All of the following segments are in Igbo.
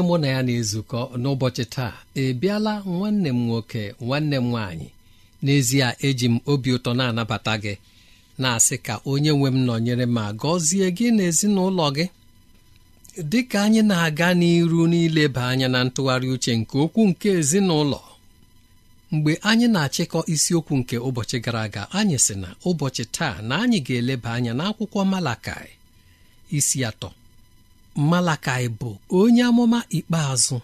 onye mụ na ya na-ezukọ n'ụbọchị taa ebiala nwanne m nwoke nwanne m nwaanyị n'ezie eji m obi ụtọ na-anabata gị na-asị ka onye nwe m nọnyere ma gọzie gị na ezinụlọ gị dị ka anyị na-aga n'iru n'ileba anya na ntụgharị uche nke okwu nke ezinụlọ mgbe anyị na-achịkọ isiokwu nke ụbọchị gara aga anyị sị na ụbọchị taa na anyị ga-eleba anya n'akwụkwọ Malakai isi atọ Malakai bụ onye amụma ikpeazụ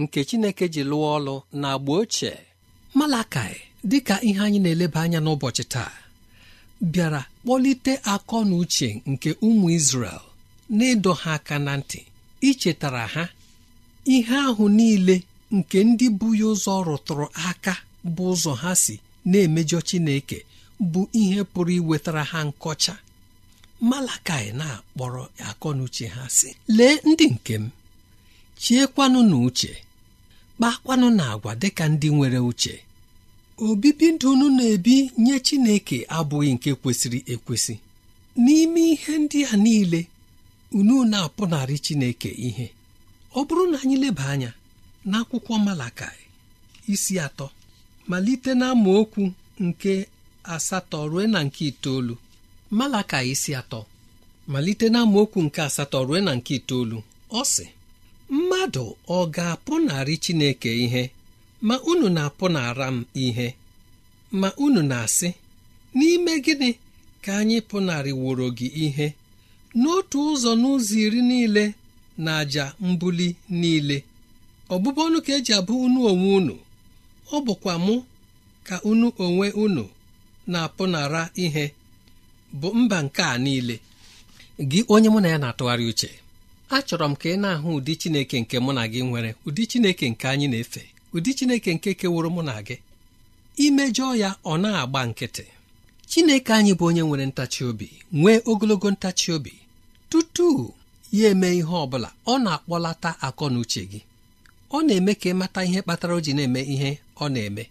nke Chineke ji lụọ ọlụ na agba ochie Malakai dịka ihe anyị na-eleba anya n'ụbọchị taa bịara kpọlite akọ na uche nke ụmụ Izrel na ha aka na ntị ichetara ha ihe ahụ niile nke ndị bụ ya ụzọ rụtụrụ aka bụ ụzọ ha si na-emejọ Chineke bụ ihe pụrụ iwetara ha nkọcha malakai na-akpọrọ akọ na uche ha sị lee ndị nke m chiekwanụ na uche kpakwanụ na agwa dịka ndị nwere uche obibi ndụ unu na-ebi nye Chineke abụghị nke kwesịrị ekwesị n'ime ihe ndị a niile unu na-apụnarị Chineke ihe ọ bụrụ na anyị leba anya n'akwụkwọ Malakai isi atọ malite na okwu nke asatọ ruo na nke itoolu malaka isi atọ malite na nke asatọ ruo na nke itoolu ọ sị mmadụ ọ ga-apụnarị Chineke ihe ma unu na-apụnara m ihe ma unu na-asị n'ime gịnị ka anyị pụnarị wụrụ gị ihe n'otu ụzọ n'ụzọ iri niile na àjà mbuli niile ọbụbụ ka eji abụ unu onwe unu ọ bụkwa mụ ka unu onwe unu na-apụnara ihe bụ mba nke a niile gị onye mụ na ya na-atụgharị uche achọrọ m ka ị na-ahụ ụdị Chineke nke mụ na gị nwere ụdị Chineke nke anyị na-efe ụdị Chineke nke keworo mụ na gị imejọ ya ọ na-agba nkịtị Chineke anyị bụ onye nwere ntachi obi nwee ogologo ntachi obi tutu ya eme ihe ọ bụla ọ na-akpọlata akọ na uche gị ọ na-eme ka ịmata ihe kpatara o ji na-eme ihe ọ na-eme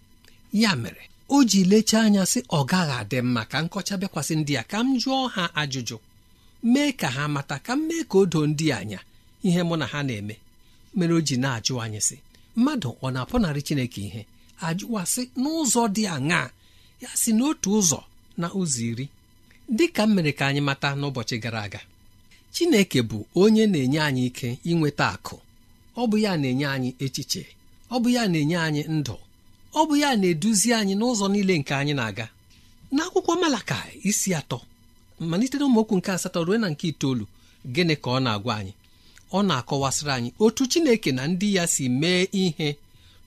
ya mere o ji lechaa anya sị ọ gaghị adị mma ka nkọcha bịakwasị ndị a ka m jụọ ha ajụjụ mee ka ha mata ka m mee ka o doo ndị anya ihe mụ na ha na-eme mere o ji na-ajụ anyị sị mmadụ ọ na-apụnarị chineke ihe ajụwasị n'ụzọ dị aṅaa ya si n'otu ụzọ na ụzọ iri dị ka mere ka anyị mata n'ụbọchị gara aga chineke bụ onye na-enye anyị ike inweta akụ ọ bụ ya na-enye anyị echiche ọ bụ ya na-enye anyị ndụ ọ bụ ya na-eduzi anyị n'ụzọ niile nke anyị na-aga n'akwụkwọ malaka isi atọ malite na nke asatọ ruo na nke itoolu gịnị ka ọ na-agwa anyị ọ na-akọwasịrị anyị otu Chineke na ndị ya si mee ihe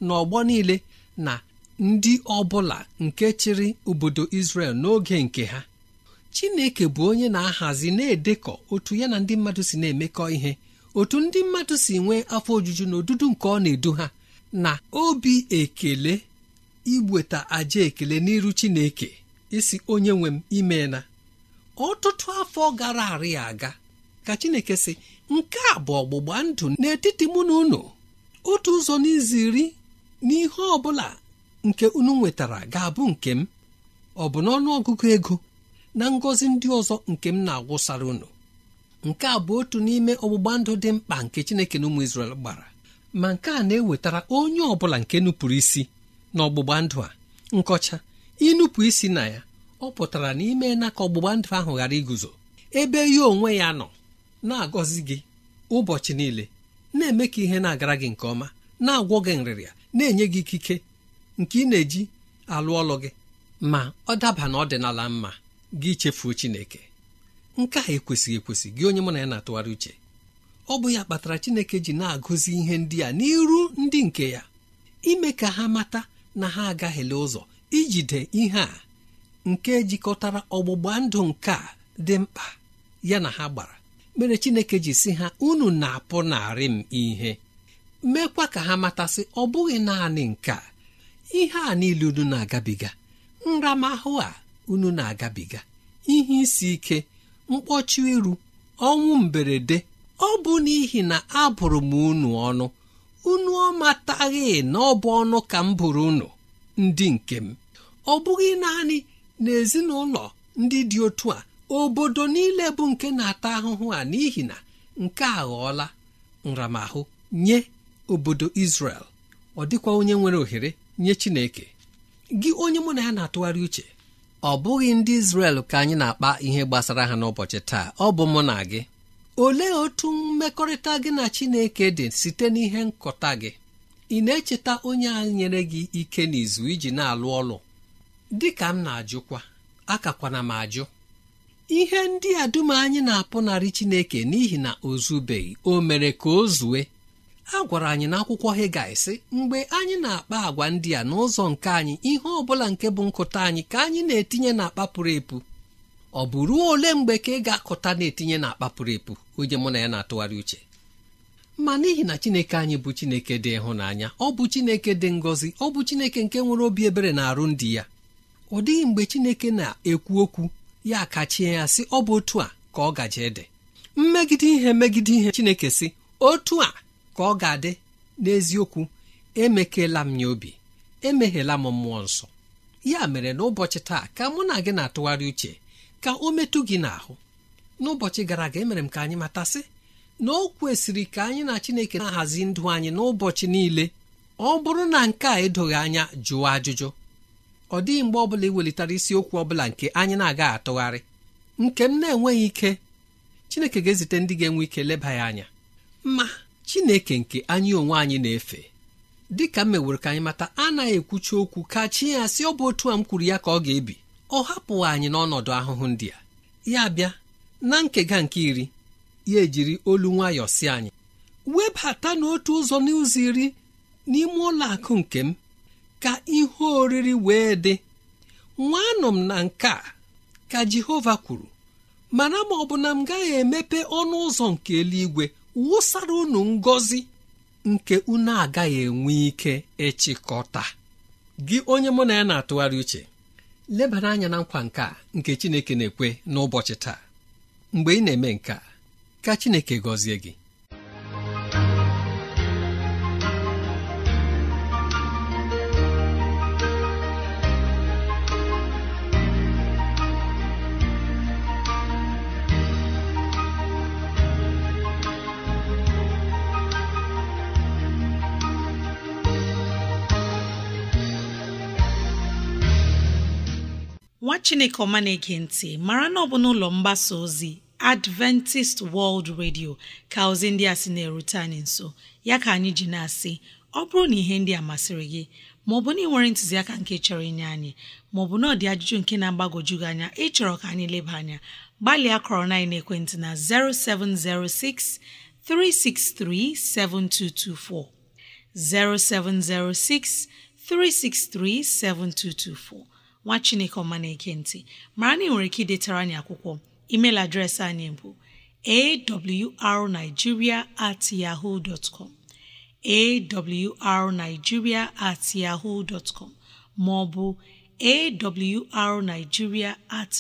n'ọgbọ niile na ndị ọbụla nke chịrị obodo Israel n'oge nke ha Chineke bụ onye na-ahazi na-edekọ otu ya na ndị mmadụ si na-emekọ ihe otu ndị mmadụ si nwee afọ ojuju na odudu nke ọ na-edu ha na obi ekele iweta aja ekele n'iru chineke isi onye nwe m imeela. ọtụtụ afọ gara arị aga ka chineke sị nke a bụ ọgbụgba ndụ n'etiti mụ na unu otu ụzọ n'iziri n'ihe ọ bụla nke unu nwetara ga-abụ nke m ọ bụ n'ọnụ ọgụgụ ego na ngọzi ndị ọzọ nke m na-agwụsara unu nke a bụ otu n'ime ọgbụgba ndụ dị mkpa nke chineke na ụmụ Izrel gbara ma nke a na-ewetara onye ọ bụla nke nupụrụ isi n'ọgbụgba ndụ a nkọcha ịnụpụ isi na ya ọ pụtara na ime na ka ọgbụgba ndụ ahụ ghara iguzo ebe ya onwe ya nọ na-agọzi gị ụbọchị niile na-eme ka ihe na-agara gị nke ọma na-agwọ gị nrịrịa na-enye gị ikike nke ị na-eji alụ ọlụ gị ma ọ daba na ọdịnala mma gị chefuo Chineke nke a ekwesịghị ekwesị gị onye mụ na ya na-atụgharị uche ọ bụ ya kpatara Chineke ji na-agụzi ihe ndị a n'iru ndị nke ya ime ka ha mata na ha agaghịla ụzọ ijide ihe a nke jikọtara ọgbụgba ndụ nke a dị mkpa ya na ha gbara mere chineke ji si ha unu na-apụ narị m ihe Mekwa ka ha matasị ọ bụghị naanị nke a ihe a niile unu na-agabiga nramahụ a unu na-agabiga ihe isi ike mkpọchi iru ọnwụ mberede ọ bụ n'ihi na abụrụ m unu ọnụ unu ọ mataghị na ọ bụ ọnụ ka m bụrụ unu ndị nke m ọ bụghị naanị n'ezinụlọ ndị dị otu a obodo niile bụ nke na-ata ahụhụ a n'ihi na nke a ghọọla nramahụ nye obodo Israel ọ dịkwa onye nwere ohere nye Chineke gị onye mụ na ya na-atụgharị uche ọ bụghị ndị Israel ka anyị na-akpa ihe gbasara ha n'ụbọchị taa ọ bụ mụ na gị olee otu mmekọrịta gị na chineke dị site n'ihe nkọta gị ị na-echeta onye a nyere gị ike n'izu iji na-alụ ọlụ dị ka m na-ajụkwa akakwana m ajụ ihe ndị a dum anyị na-apụnarị chineke n'ihi na o zubeghị o mere ka o zue a gwara anyị n'akwụkwọ akwụkwọ sị mgbe anyị na-akpa agwa ndị a n'ụzọ nke anyị ihe ọ bụla nke bụ nkụta anyị ka anyị na-etinye n'akpa pụrụ epu ọ bụ ruo ole mgbe ka ị ga-akụta na-etinye na akpa pụrụ epu onye mụ na ya na-atụgharị uche ma n'ihi na chineke anyị bụ chineke dị ịhụnanya ọ bụ chineke dị ngọzi ọ bụ chineke nke nwere obi ebere na arụ ndị ya ọ dịghị mgbe chineke na-ekwu okwu ya kachie ya sị ọ bụ otu a ka ọ gaje dị mmegide ihe megide ihe chineke sị otu a ka ọ ga-adị n'eziokwu emekela m ya obi emeghela m mmụọ nsọ ya mere n'ụbọchị taa ka mụ na gị na-atụgharị uche ka o metụ gị n'ahụ n'ụbọchị gara aga emere m ka anyị matasị na o kwesịrị ka anyị na Chineke na-ahazi ndụ anyị n'ụbọchị niile ọ bụrụ na nke a edoghị anya jụọ ajụjụ ọ dịghị mgbe ọ bụla iwelitere isiokwu ọ bụla nke anyị na-aga atụgharị nke m na-enweghị ike Chineke ga-ezite ndị ga-enwe ike leba ya anya ma Chineke nke anyị onwe anyị na-efe dị ka m meworo ka anyị mata anaghị ekwucha okwu ka chi ya sị ọ bụ otu a m kwuru ya ka ọ ga-ebi ọ hapụghị anyị n'ọnọdụ ahụhụ ndị a ya bịa na nkega nke iri ya ejiri olu nwayọ si anyị webata n'otu ụzọ n'ụzọ iri n'ime ụlọ akụ nke m ka ihe oriri wee dị nwanụ m na nke a ka Jehova kwuru mana ma ọ na m gaghị emepe ọnụ ụzọ nke eluigwe wụsara unu ngọzi nke unu agaghị enwe ike ịchịkọta gị onye mụ na ya na-atụgharị uche lebara anya na nkwa nka nke Chineke na-ekwe n'ụbọchị taa mgbe ị na-eme nke ka Chineke gọzie gị chineke ọma na-ege ntị mara na ọ bụ n'ụlọ mgbasa ozi adventist world radio ka ozi ndị a sị na-erute anyị nso ya ka anyị ji na-asị ọ bụrụ na ihe ndị a masịrị gị maọbụ na ị nwere ntụziaka nke chọrọ inye anyị maọbụ na ọdị ajụjụ nke na-agbagwoju gị anya ịchọrọ ka anyị leba anya gbalịa kọrọ na ekwentị na 0706 363 7224 0706 363 7224 nwa chineke ọma na-eke ntị mara na ị nwere ike idetara anyị akwụkwọ emeil adreesị anyị bụ arigiria at yahoo at yahoo com ma ọ bụ awrnigeria at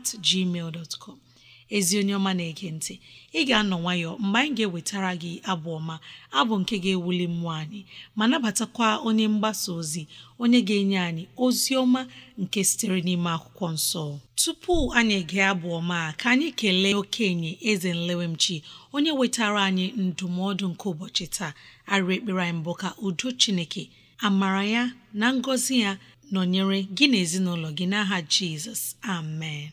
at gmail ezi onye ọma na-ege ntị ị ga-anọ nwayọ mgbe anyị ga-ewetara gị abụ ọma abụ nke ga-ewuli mmụọ anyị ma nabatakwa onye mgbasa ozi onye ga-enye anyị ozi ọma nke sitere n'ime akwụkwọ nsọ tupu anyị gaa abụ ọma ka anyị kelee okenye eze nlewemchi onye wetara anyị ndụmọdụ nke ụbọchị taa arị ekpere anyị mbụ ka udo chineke amara ya na ngọzi ya nọnyere gị na ezinụlọ gị n'aha jizọs amen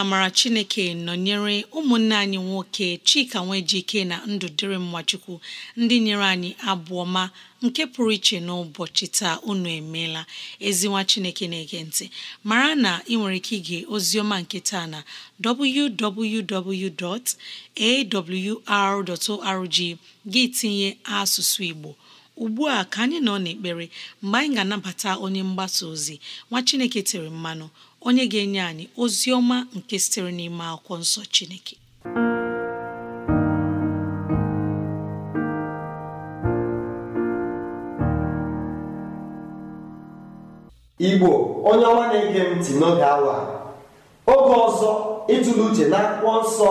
na amara chineke nọnyere ụmụnne anyị nwoke chika nwejike na ndụ dịrị mmachukwu ndị nyere anyị abụọ ma nke pụrụ iche n'ụbọchị taa unu emeela ezinwa chineke na-ege ntị mara na ị nwere ike ige oziọma nke taa na www.awr.org gị tinye asụsụ igbo ugbu a ka anyị nọ n'ekpere mgbe anyị ga-anabata onye mgbasa ozi nwa chineke tere mmanụ onye ga-enye anyị ozi ọma nke sitere n'ime akwụkwọ nsọ Chineke Igbo onye ọma na-ege ntị n'oge awa oge ọzọ ịtụle uche na akwụkwọ nsọ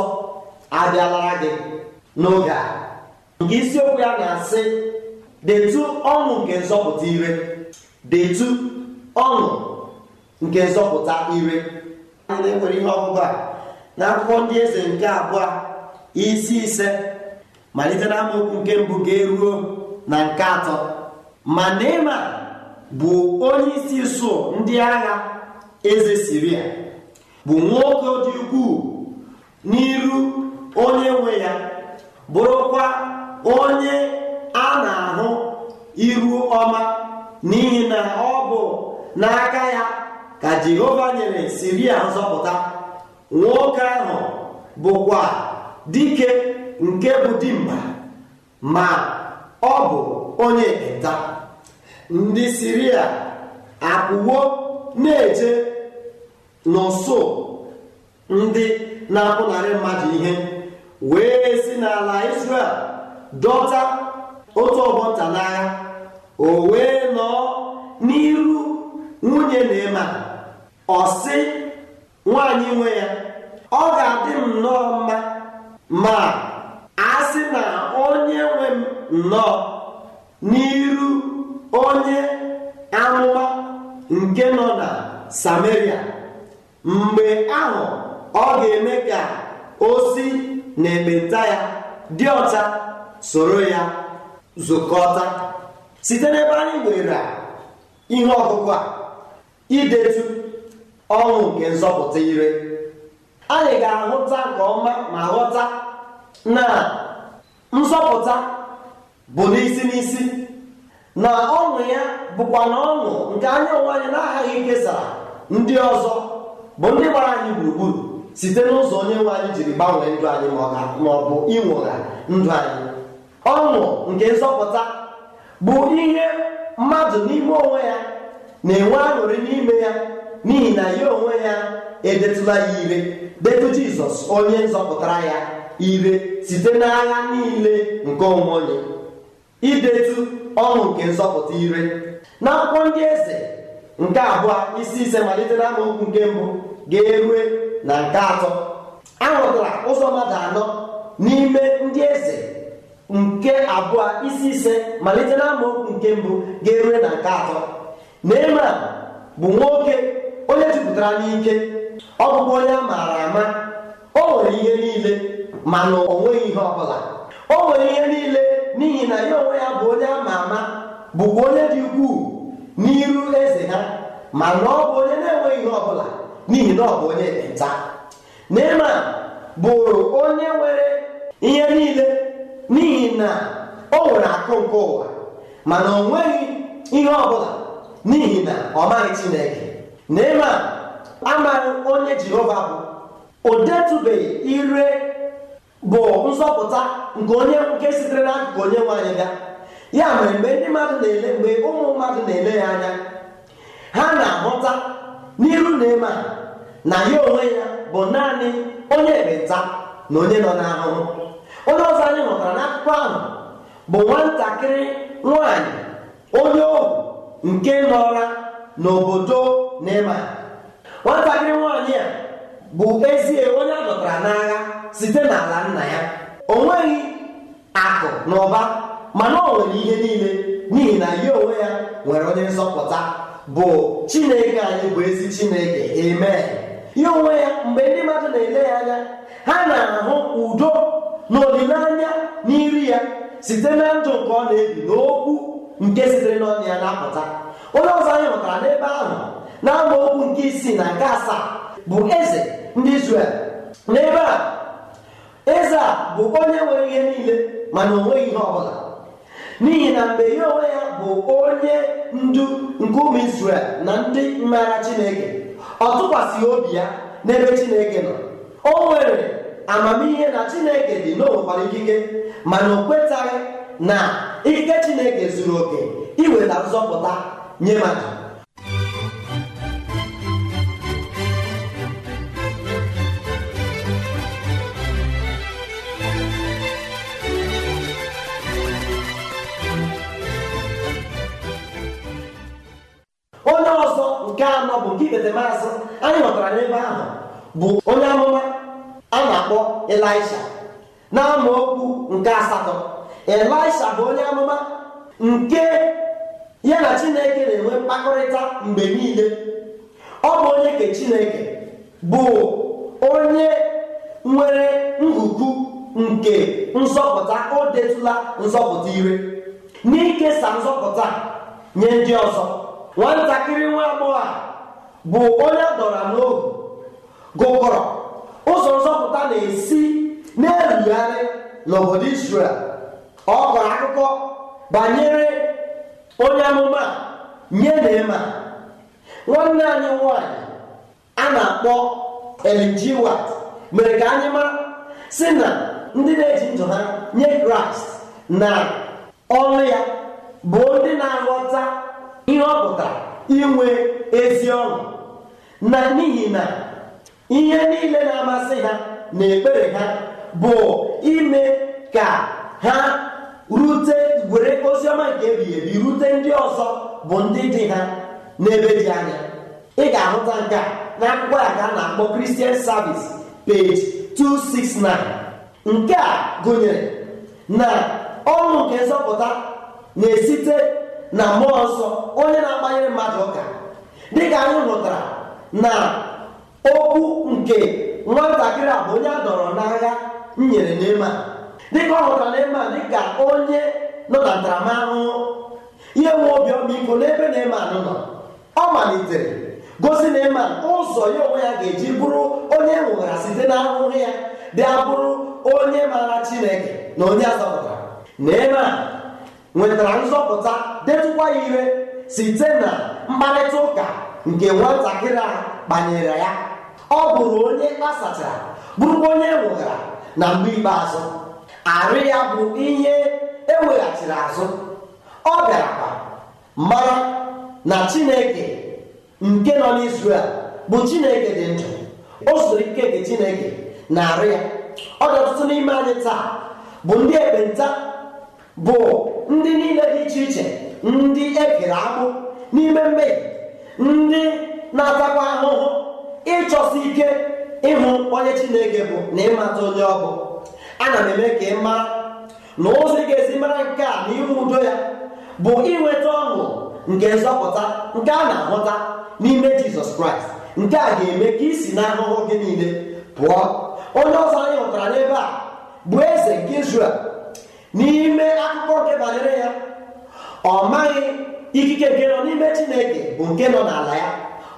abịala gị n'oge a nke isiokwu ya na-asị detụ ọnụ nke nzọpụta ire detu ọnụ. nke nzọpụta ire ndị e nwere ihe ọgụgụ a na akwụkwọ ndị eze nke abụọ isi ise malite na amaokwu nke mbụ ga-eruo na nke atọ ma Neman bụ onye isi isuo ndị agha eze siri ya, bụ nwoke dị ukwuu n'iru onye nwe ya bụrụkwa onye a na-ahụ iru ọma n'ihi na ọ bụ n'aka ya ka jehova nyere siria nzọpụta nwoke ahụ bụkwa dike nke bụ dimba ma ọ bụ onye ekpenta ndị siria akwụwo na-eje n'ụsụ ndị na-apụnarị mmadụ ihe wee si n'ala israel dọta otu ọgbọ nta n'agha o wee nọọ n'iru nwunye na-ema ọsị sị nwaanyị nwe ya ọ ga-adị m nnọọ mma ma a sị na onye nwe m nnọọ n'iru onye amụma nke nọ na Samaria mgbe ahụ ọ ga-eme ka o si na ekpenta ya dị ọcha soro ya zụkọta site n'ebe anyị nwere ihe ọgụgụ a idetu Ọnwụ nke nzọpụta ire anyị ga-ahụta nke ọma ma ghọta na nzọpụta bụ n'isi n'isi na ọṅụ ya bụkwa na ọṅụ nke anya onwe anyị na-aghaghị kesara ndị ọzọ bụ ndị gbara anyị gburugburu site n'ụzọ onye nwe anyị jiri gbanwee ndụ anyị ma ọ bụ ịnwụgha ndụ anyị ọṅụ nke nzọpụta bụ ihe mmadụ n'ime onwe ya na-enwe aṅụrị n'ime ya n'ihi na ya onwe ya edetụla ya ire detụ jizọs onye nzọpụtara ya ire site n'agha niile nke onwe onye idetu ọṅụ nke nzọpụta ire na akwụkwọ ndị eze nke abụọ isi ise malite na amaokwu nke mbụ ga-erue na nke atọ ahụtara ụzọ mmadụ anọ n'ime ndị eze nke abụọ isi ise malite na amaokwu nke mbụ ga-erue na nke atọ na eme bụ nwoke onye jupụtara n'ike ọ bụkwa onye a maara ama o nwere ihe niile mana o nweghị ihe ọbụla o nwere ihe niile n'ihi na ya onwe ya bụ onye ama ama bụkwa onye dị ukwuu n'iru eze ha mana ọ bụ onye na-enweghị ihe ọbụla n'ihi na ọ bụ onye nta. Neman bụrụ onye nwere ihe niile n'ihi na o nwere akụ nke ụwa mana o nweghị ihe ọbụla n'ihi na ọ maghị Chineke Neeman amaghị onye Jehova bụ odetụbeghị ire bụ nzọpụta nke onye nke sitere n'akụkụ onye nwanyị anyị bịa ya mere mgbe ndị mmadụ na-ele mgbe ụmụ mmadụ na-ele ya anya ha na-ahụta n'iru Neeman na ya onwe ya bụ naanị onye ekpenta na onye nọ n'ahụhụ onye ọzọ anyị hụtara n'akụkọ ahụ bụ nwatakịrị nwanyị onye ohu nke nọra n'obodo naịma nwatakịrị nwaanyị a bụ ezie onye a dọtara n'agha site n'ala nna ya o nweghị akụ na ụba mana o nwere ihe niile n'ihi na ya onwe ya nwere onye nzọpụta bụ chineke anyị bụ ezi chineke eme ya onwe ya mgbe ndị mmadụ na-ele ya anya ha na-ahụ udo na olileanya n'iri ya site na ndụ nke ọ na-ebi n'okwu nke sitere n'ọnụ ya na-apụta onye ọzọ anyị hụtara n'ebe ahụ na okwu nke isii na nke asaa bụ eze ndị Izrel n'ebe a eze a bụ onye nwere ihe niile mana onweghị ihe ọ bụla n'ihi na mgbe ihe onwe ya bụ onye ndu nke ụmụ Izrel na ndị mmara Chineke ọ tụkwasịghị obi ya n'ebe Chineke nọ o nwere amamihe na Chineke dị na ikike mana o kwetaghị na ike Chineke zuru oke iweta nzọpụta nye m onye ọzọ nke anọ bụ nke ikpete anyị nọtara n'ebe ahụ bụ onye amụma a na-akpọ Elisha na amaokwu nke asatọ Elisha bụ onye amụma nke ya na chineke na-enwe mkpakọrịta mgbe niile ọ bụ onye ke chineke bụ onye nwere ngụgụ nke nzọpụta o detụla nzọpụta ire n'ikesa nzọpụta nye ndị ọzọ nwatakịrị nwa agbọghọ a bụ onye dọrọ n'ohu gụkọrọ ụzọ nzọpụta na-esi na-erugharị n'obodo Israel ọ kọrọ akụkọ banyere nye na nwanne anyị nwanyị a na-akpọ LGW mere ka anyị mara si na ndị na-eji ndụ ha nye kraịst na ọrụ ya bụ ndị na-aghọta ihe ọ pụtara inwe ezi ọnụ, na n'ihi na ihe niile na-amasị ha na ekpere ha bụ ime ka ha rute were oziọma nke ebighị ebi rute ndị ọzọ bụ ndị dị ha n'ebe dị anya ị ga-ahụta nke a na akwụkwọ ya ka a na-akpọ Christian Service page 269 nke a gụnyere na ọnụ nke nzọpụta na-esite na mmụọ nsọ onye na-agbanyere mmadụ ụka dịka anyị hụtara na okwu nke nwatakịrị a bụ onye a dọrọ n'agha nyere n'ime a dịka ọ hụtara dị dịka onye nọ na ntaramahụhụ ihe nwe obi ọmịiko n'ebe Neeman nọ ọ malitere gosi Neeman ụzọ ya onwe ya ga-eji bụrụ onye e nwụghara site na ahụhụ ya bịa bụrụ onye maara Chineke na onye azọpụtara Neeman nwetara nzọpụta detụkwa ya ire site na mkparịta ụka nke nwatakịrị a kpanyere ya ọ bụrụ onye a sachara bụrụkwa onye e nwụghara na mgbe ikpeazụ arụ ya bụ ihe eweghachiri azụ ọ kwa mara na chineke nke nọ n'isrel bụ chineke dị ndụ o ike nke chineke na arụ ya ọ dị ọtụtụ n'ime anyị taa bụ ndị ekpenta bụ ndị niile dị iche iche ndị ekere akụ n'ime mmehie ndị na-atakwa ahụhụ ịchọsi ike ịhụ onye chineke bụ na ịmata onye ọ ana m eme ka ị mara na ụzọ ị ga-esi mara nke a na udo ya bụ inweta ọṅụ nke nzọpụta nke a na-ahụta n'ime jizọs kraịst nke a ga-eme ka isi na ahụhụ gị niile pụọ onye ọzọ anyị hụtara n'ebe a bụ eze nke Izrel n'ime akụkọ nke banyere ya ọ maghị ikike nke nọ n'ime chineke bụ nke nọ n'ala ya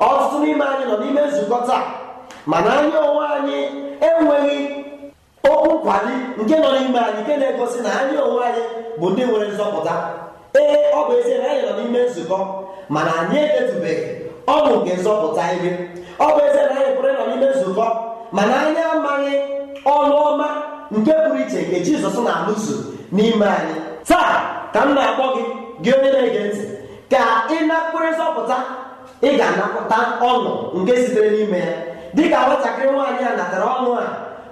ọtụtụ n'ime anyị nọ n'ime nzukọ taa mana anyị onwe anyị enweghị okwu nkwali nke nọ n'ime anyị nke na-egosi na anyị onwe anyị bụ ndị nwere nzọpụta ee ọ bụ ezie na anyị nọ n'ime nzukọ mana anyị edetubeghị ọṅụ nke nzọpụta ihe ọ bụ ezie na anyị pụrụ ịnọ n'ime nzukọ mana anyị amaghị ọnụ ọma nke pụrụ iche nke Jizọs na-alụso n'ime anyị taa ka m na-akpọ gị gị onye na-ege ntị ka ị napụrụ nzọpụta ị ga-anapụta ọṅụ nke sitere n'ime ya dịka nwatakịrị nwaanyị a natara ọnụ a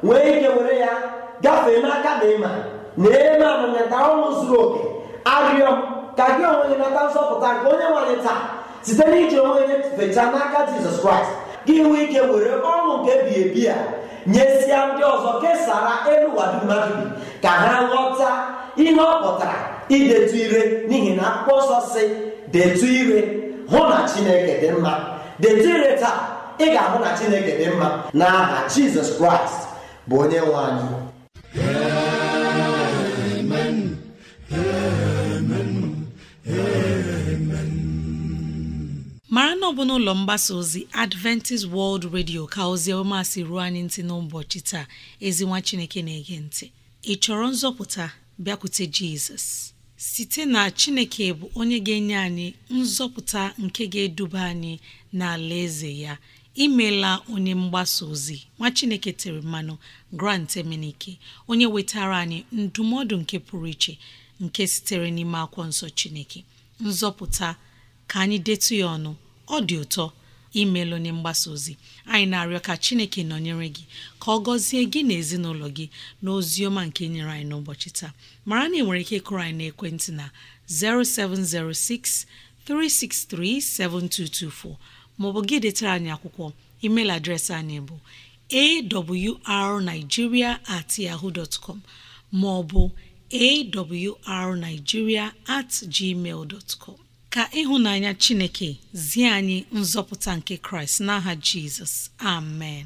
wee ike were ya gafee n'aka na ịma na eme amanyata ọnwụ zuru oke arịọ ka gị onwe gị nata nsọpụta nke onye nwanyị taa site na iji onwe gị n'aka jizọs kraịst gị nwee ike were ọnwụ nke bi ebi nye nyesịa ndị ọzọ kesara elu wadumadu ka ha ghọta ihe ọ pụtara idetu ire n'ihi na akwụkwọ ọsọ si detu ire hụ na chineke dị mma detu ire taa ị ga-ahụ na chineke dị mma n'aha jizọs kraịst bụ onye nwe anyị mara na ọ bụ n'ụlọ mgbasa ozi adventist world radio ka ozi ọma si ruo anyị ntị n'ụbọchị taa ezinwa chineke na-ege ntị ị chọrọ nzọpụta bịakwute jizọs site na chineke bụ onye ga-enye anyị nzọpụta nke ga-eduba anyị n'ala eze ya imela onye mgbasa ozi nwa chineke tere mmanụ grant emenike onye wetara anyị ndụmọdụ nke pụrụ iche nke sitere n'ime akwụkwọ nsọ chineke nzọpụta ka anyị detu ya ọnụ ọ dị ụtọ imeela onye mgbasa ozi anyị na-arịọ ka chineke nọnyere gị ka ọ gọzie gị na ezinụlọ gị na ozi ọma nke nyere anyị n'ụbọchị taa mara na ị nwere ike ịkụrụ anyị n'ekwentị na 0706 363 7224 maọbụ gị detara anyị akwụkwọ email adreesị anyị bụ awrnigeria at yahoo dot com maọbụ awrnigeria at gmail dot com ka ịhụnanya chineke zie anyị nzọpụta nke kraịst n'aha jizọs amen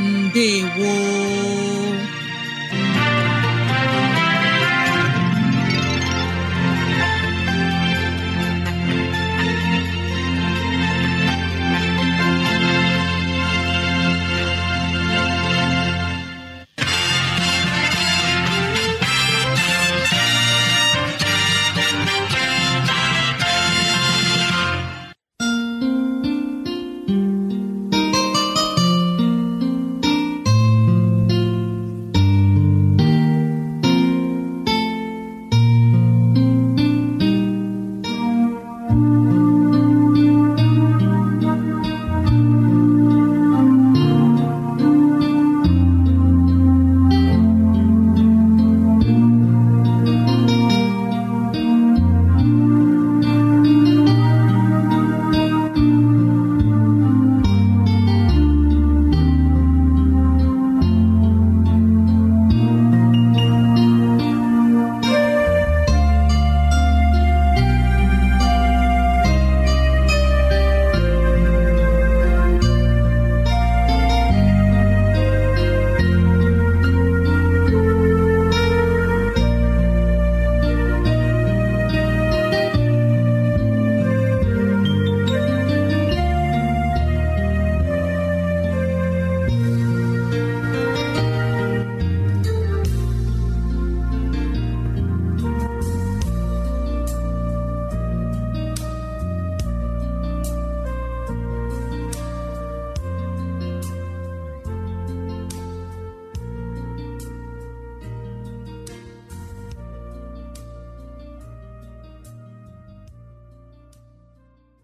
ndewo